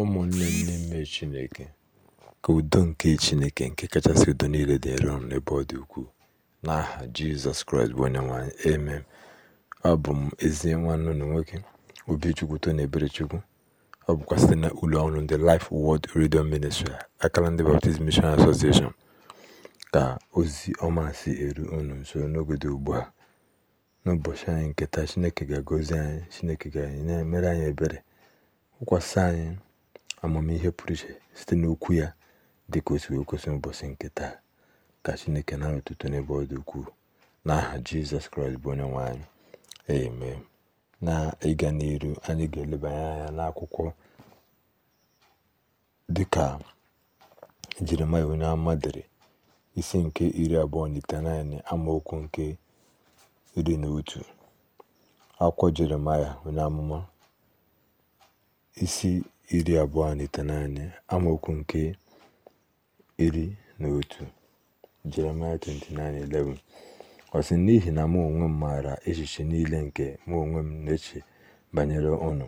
Ụmụnne n'ime Chineke, ka udo nke Chineke nke kachasị udo niile dịrị unu n'ebe ọ dị ukwuu, n'aha Jizọs Kraịst bụ Onyenwe anyị, amen. Abụ m ezi nwanne unu nwoke Obichukwu ebere Eberechukwu. Ọ bụkwa site na ụlọ ọrụ ndị Life wod Radio Ministry akara ndị Baptist Mission Association ka ozi ọma si eru unu nso n'oge dị ugbu a. N'ụbọchị anyị nketa Chineke ga-agọzi anyị Chineke ga-emere anyị ebere kwụkwasị anyị amamihe pụrụ iche site n'okwu ya dị ka o wee kwesị ụbọchị nke taa ka chineke na ụtụtụ n'ebe ọ dị ukwuu n'aha jizọs kraịst bụ onye nwaanyị anyị na ịga n'iru anyị ga-elebanye anya n'akwụkwọ dịka jeremaya onye ama dere isi nke iri abụọ na itenaịnị amaokwu nke iri na otu akwụkwọ jeremaya onye amụma isi iri abụọ na naanị amaokwu nke iri na otu jeremaya 29:11 ọ sị n'ihi na mụ onwe m maara echiche niile nke mụ onwe m na-eche banyere ụnụ,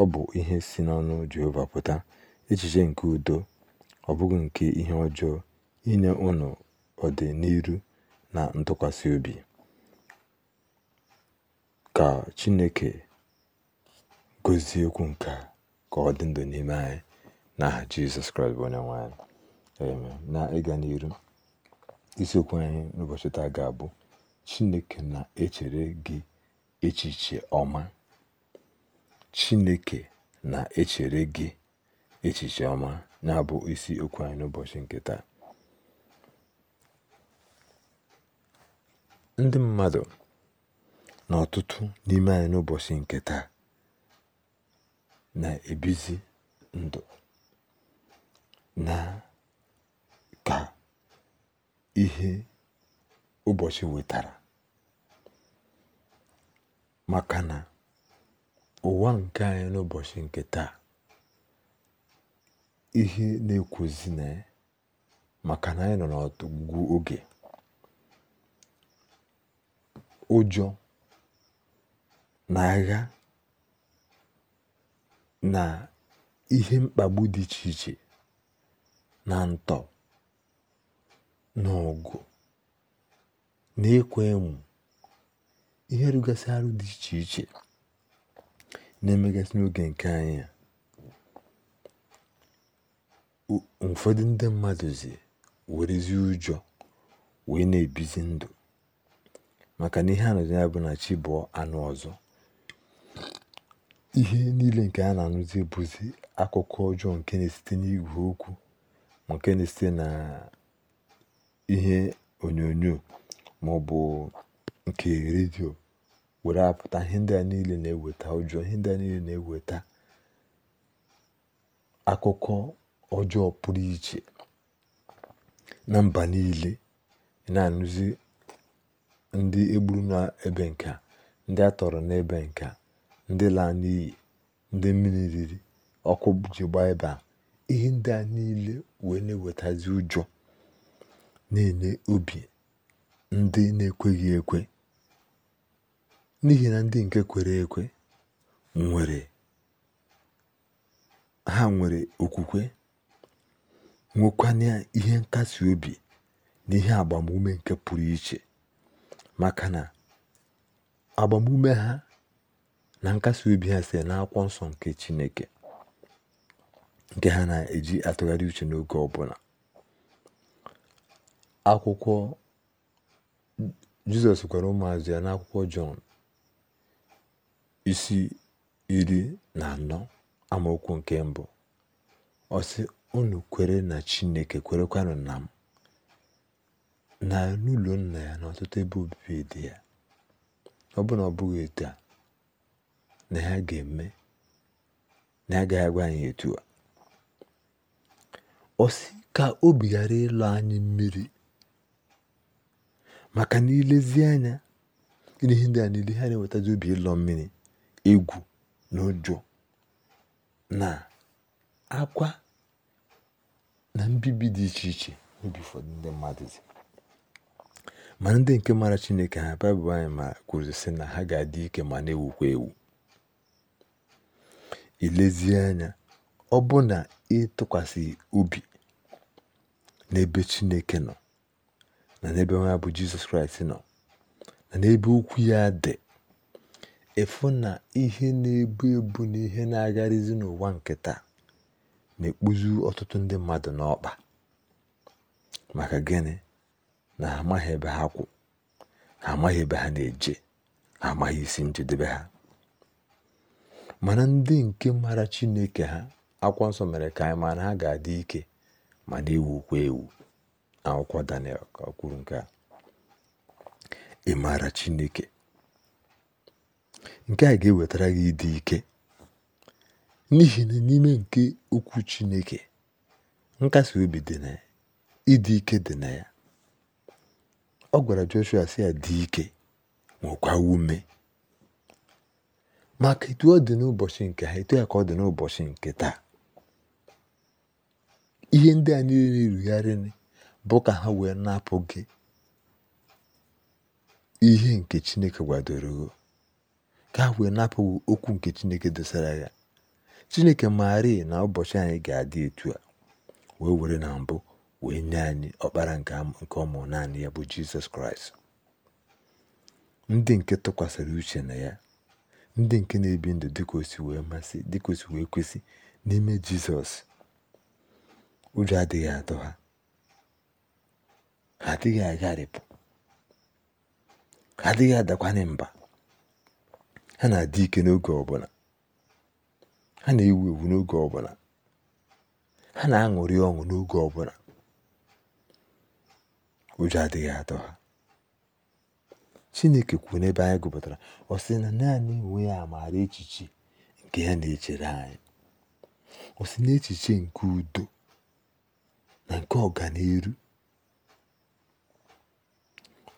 ọ bụ ihe si n'ọnụ jehova pụta echiche nke udo ọ bụghị nke ihe ọjọọ inye ọdị ọdịn'iru na ntụkwasị obi ka chineke gozie okwu nke a ka ọ dị ndụ n'ime anyị n'aha jizọs kraịst bụ onye nwe na ịga n'iru isiokwu anyị n'ụbọchị taa ga-abụ chineke na-echere gị echiche ọma chineke na-echere gị echiche ọma na-abụ isi okwu anyị n'ụbọchị nke taa ndị mmadụ na ọtụtụ n'ime anyị n'ụbọchị nke taa na-ebizi ndụ na ka ihe ụbọchị wetara maka na ụwa nke anyị n'ụbọchị nke taa ihe na-ekwuzi na ya maka na anyị nọ n'ọtụgwụ oge ụjọ na agha na ihe mkpagbu dị iche iche na ntọ n'ọgụ na ekwo emù ihe rụgasị arụ dị iche iche na-emegasị n'oge nke anyị a ụfọdụ ndị mmadụ zi werezi ụjọ wee na-ebizi ndụ maka na ihe a nọzi ya bụ na chi anụ ọzọ ihe niile nke a na-anụzi bụzi akụkọ ọjọọ nke na-esite n'igwe okwu ma nke na-esite na ihe onyonyo ma ọ bụ nke redio were apụta ihe ndị a niile na-eweta ụjọ ihe ndị a niile na-eweta akụkọ ọjọọ pụrụ iche na mba niile na-anụzi ndị egburu n'ebe nke a ndị a tọrọ n'ebe nke a ndị lan'iyi ndị mmiri riri ọkụ ji gbaa ebe a ihe ndị a niile wee na-ewetazi ụjọ na-enye obi ndị na-ekweghị ekwe n'ihi na ndị nke kwere ekwe nwere ha nwere okwukwe nwekwanye ihe nkasi obi na ihe agbamume nke pụrụ iche maka na agbamume ha na nkasi obi ha na n'akwụkwọ nsọ nke Chineke nke ha na-eji atụgharị uche n'oge ọbụla akwụkwọ Jizọs gwara ụmụazị ya na akwụkwọ Jọn isi iri na anọ amaokwu nke mbụ ọsị unu kwere na Chineke kwerekwanụ na m na n'ụlọ nna ya na ọtụtụ ebe obibi dị ya ọ bụrụ na ọ bụghị a na ya ga-eme na ya agwa anyị etu a ọ ka obi ghara ịlọ anyị mmiri maka na ilezi anya ihe ndị a niile ha na-ewetazi obi ịlọ mmiri egwu na ụjọ na akwa na mbibi dị iche iche n'obi ụfọdụ ndị mmadụ dị ma ndị nke mara chineke ha baịbụl anyị ma kwuru na ha ga-adị ike ma na-ewukwa ewu Elezi anya ọ bụ na ị obi n'ebe Chineke nọ na n'ebe nwa bụ Jizọs Kraịst nọ na n'ebe okwu ya dị ịfụ na ihe na-ebu ebu na ihe na agarịzi n'ụwa nke na-ekpuzi ọtụtụ ndị mmadụ n'ọkpa maka gịnị na ha amaghị ebe ha kwụ ha amaghị ebe ha na-eje ha amaghị isi njedebe ha mana ndị nke mara chineke ha akwụkwọ nsọ mere ka anyị mara ha ga-adị ike ma na-ewukwa ewu akwụkwọ Daniel ka kwuru nke a ị maara chineke nke a ga-ewetara gị ịdị ike n'ihi na n'ime nke okwu chineke nkasi obi dị na ya ịdị ike dị na ya ọ gwara Joshua si ya dị ike nwekwa ume maka etu ọ dị n'ụbọchị nke ha etu ya ka ọ dị n'ụbọchị nke taa ihe ndị a niile rugharịrị bụ ka ha wee napụ gị ihe nke Chineke gwadoro ka ha wee napụ okwu nke Chineke dosara ya Chineke maara na ụbọchị anyị ga-adị etu a wee were na mbụ wee nye anyị ọkpara nke ọmụ naanị ya bụ Jizọs Kraịst ndị nke tụkwasịrị uche na ya ndị nke na-ebi ndụ dịka osi wee masị dịka wee kwesị n'ime jizọs ụjọ adịghị atọ ha ha adịghị agharịpụ ha adịghị adakwanye mba ha na-adị ike n'oge ọbụla ha na-ewu ewu n'oge ọbụla ha na-aṅụrị ọṅụ n'oge ọbụla ụjọ adịghị atọ ha Chineke kwuru n'ebe anyị gụpụtara ọ sị na naanị onwe ya maara echiche nke ya na-echere anyị ọ sị na echiche nke udo na nke ọganiru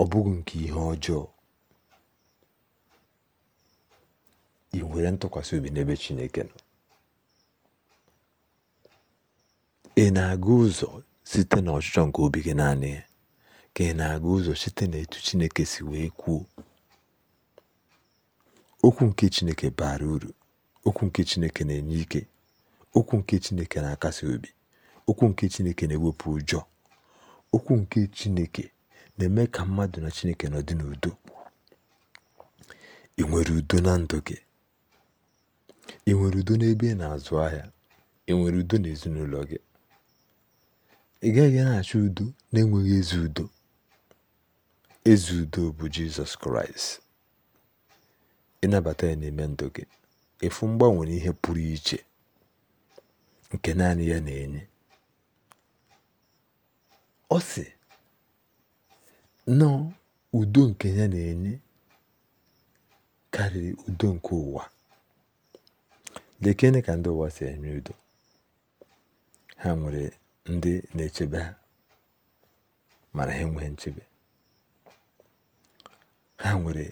ọ bụghị nke ihe ọjọọ ị nwere ntụkwasị obi n'ebe Chineke nọ ị na-aga ụzọ site n'ọchịchọ nke obi naanị ya ka ị na-aga ụzọ site na n'etu Chineke si wee kwuo okwu nke Chineke bara uru okwu nke Chineke na-enye ike okwu nke Chineke na-akasi obi okwu nke Chineke na-ewepụ ụjọ okwu nke Chineke na-eme ka mmadụ na Chineke nọ dị n'udo ị nwere udo na ndụ gị ị nwere udo n'ebe ị na-azụ ahịa ị nwere udo n'ezinụlọ gị ị gaghị na-achọ udo na-enweghị ezi udo Eze udo bụ Jizọs Kraịst. Ịnabata ya n'ime ndụ gị efu mgbanwe na ihe pụrụ iche nke naanị ya na-enye ọ sị nọọ udo nke ya na-enye karịrị udo nke ụwa lekene ka ndị ụwa si enye udo ha nwere ndị na-echebe ha mana ha enweghị nchebe ha nwere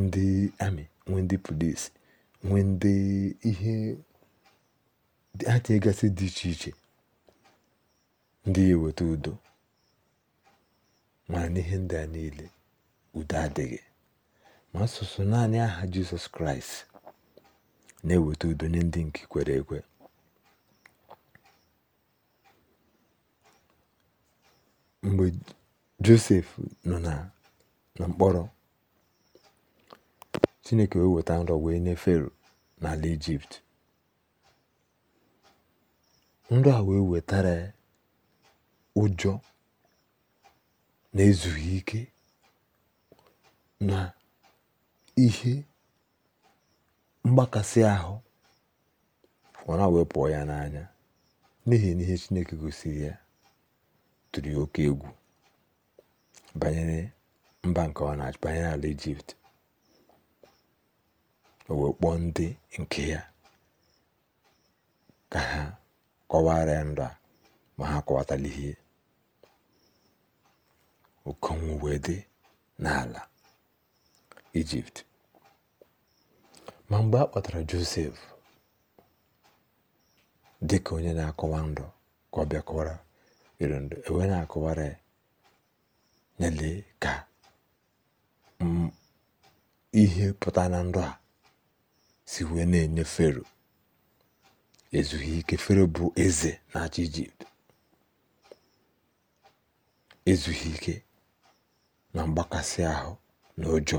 ndị amị nwee ndị polisi nwee ndị ihe ha dị iche iche ndị eweta udo mana n'ihe ndị a niile udo adịghị ma asụsụ naanị aha jizọs kraịst na-eweta udo nye ndị nke kwere ekwe mgbe josef nọ na mkpọrọ chineke wee weta nrọ wee nye fero n'ala ijipt nrọ a wee wetara ụjọ na-ezughị ike na ihe mgbakasị ahụ ọna wee pụọ ya n'anya n'ihi na ihe chineke gosiri ya tụrụ ya oke egwu banyere mba nke ọ na-achị banyere ala ijipt o wee kpọọ ndị nke ya ka ha kọwara ndụ a ma ha kọwatala ihe okonwu wee dị n'ala ijipt ma mgbe a kpọtara josef dị ka onye na-akọwa ndụ ka ọ bịa kọwara iri ndụ ewee na-akọwara ya ka ihe pụta na ndụ a si wee na-enye fero ezughị ike fero bụ eze na-achị ijipt ezughị ike na mgbakasị ahụ na ụjọ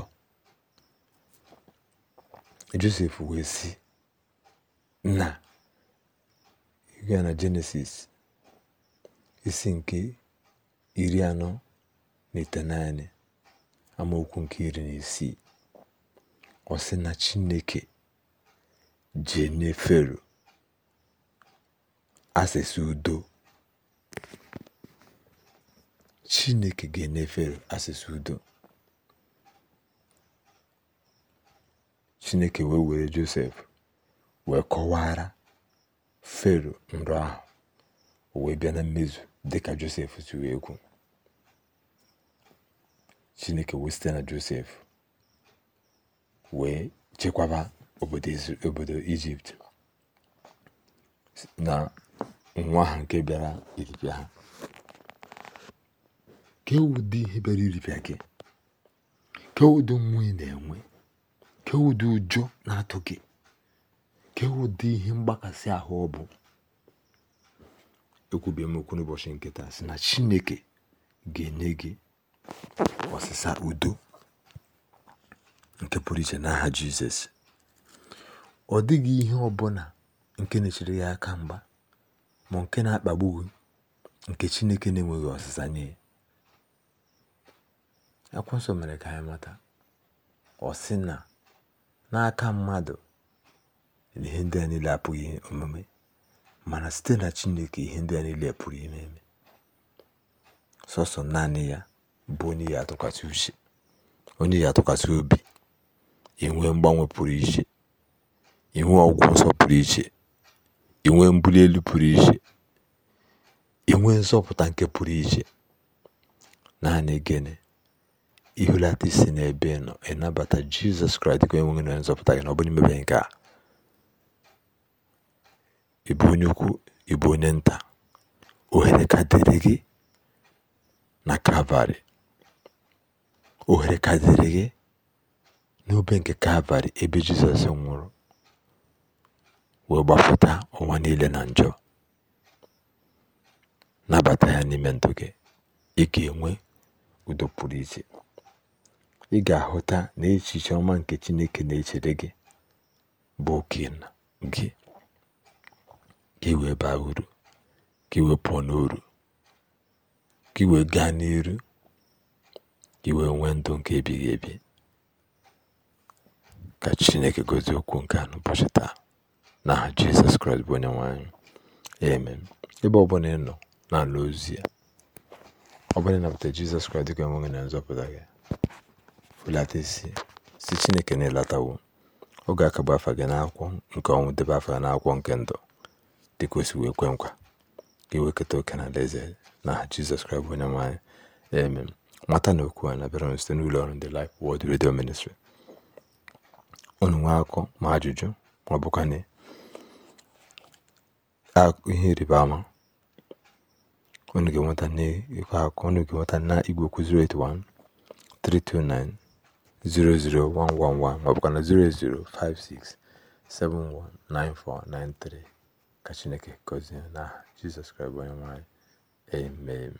josef wee sị na a na jenesis isi nke iri anọ na itenaine amaokwu nke iri na isii ọ sị na chineke Jenneferu asịsị udo Chineke ga-enye udo Chineke wee were Josef wee kọwara Fero nrọ ahụ wee bịa na mmezu dịka Josef si wee kwu Chineke wee site na Josef wee chekwaba obodo obodo ijipt na nwa ha nke bịara iripịa ha ke ihe bịara iripịa gị ke ụdị na-enwe ke ụdị ụjọ na-atụ gị ke ụdị ihe mgbakasị ahụ ọ bụ ekwubie m okwu n'ụbọchị nkịta si na chineke ga-enye gị ọsịsa udo nke pụrụ iche n'aha jizọs ọ dịghị ihe ọbụla nke na-echere ya aka mgba ma nke na-akpagbu nke Chineke na-enweghị ọsịsa nye ya Akwụsọ mere ka anyị mata ọ sị na n'aka mmadụ ihe ndị a niile apụghị omume mana site na Chineke ihe ndị a niile pụrụ ime eme sọsọ naanị ya bụ onye ya atụkwasị uche onye atụkwasị obi enwee mgbanwe pụrụ iche inwe ọgwụ nsọ pụrụ iche, inwe mbuli elu pụrụ iche, inwe nwee nzọpụta nke pụrụ iche. Naanị gịnị? Ihulata isi n'ebe nọ, ịnabata Jizọs Kraịst ka enweghị nwe na nzọpụta gị na ọ bụghị mmebi nke a. Ị onye ukwu, ibu onye nta, ohere ka dịrị gị na Kalvarị. Ohere ka dịrị gị n'obe nke Kalvarị ebe Jizọs nwụrụ. wee gbapụta ụwa niile na njọ nabata ya n'ime ndụ gị ị ga-enwe udo pụrụ iche ị ga-ahụta na echiche ọma nke Chineke na-echere gị bụ oke gị gị wee baa uru gị iwe pụọ n'uru ka wee gaa n'iru gị iwee nwee ndụ nke ebighị ebi ka Chineke gozie okwu nke anụ n'ụbọchị taa na Jizọs Kraịst bụ onye nwe amen ebe ọbụla ị nọ n'ala ozi ya ọ bụla ịnabata Jizọs Kraịst dịka onwe na nzọpụta gị fulata isi si Chineke na-elatawo oge ga-akagbu afa gị n'akwụ nke ọnwụ debe afa na-akwụkwọ nke ndụ dịka o wee kwe nkwa ka ewekọta oke na alaeze na Jizọs Kraịst bụ onye nwe amen mata na okwu a na-abịara site n'ụlọ ọrụ ndị Life wod redio Ministry ụnụ nwee akọ ma ajụjụ ma ọ bụkwa na ihe ịrịba ama unu ga-enweta na igwe okwu 081 329 00111 maọbụkwa na ka Chineke gọzie na Jizọs Kraịst bụ onye Nwanyị.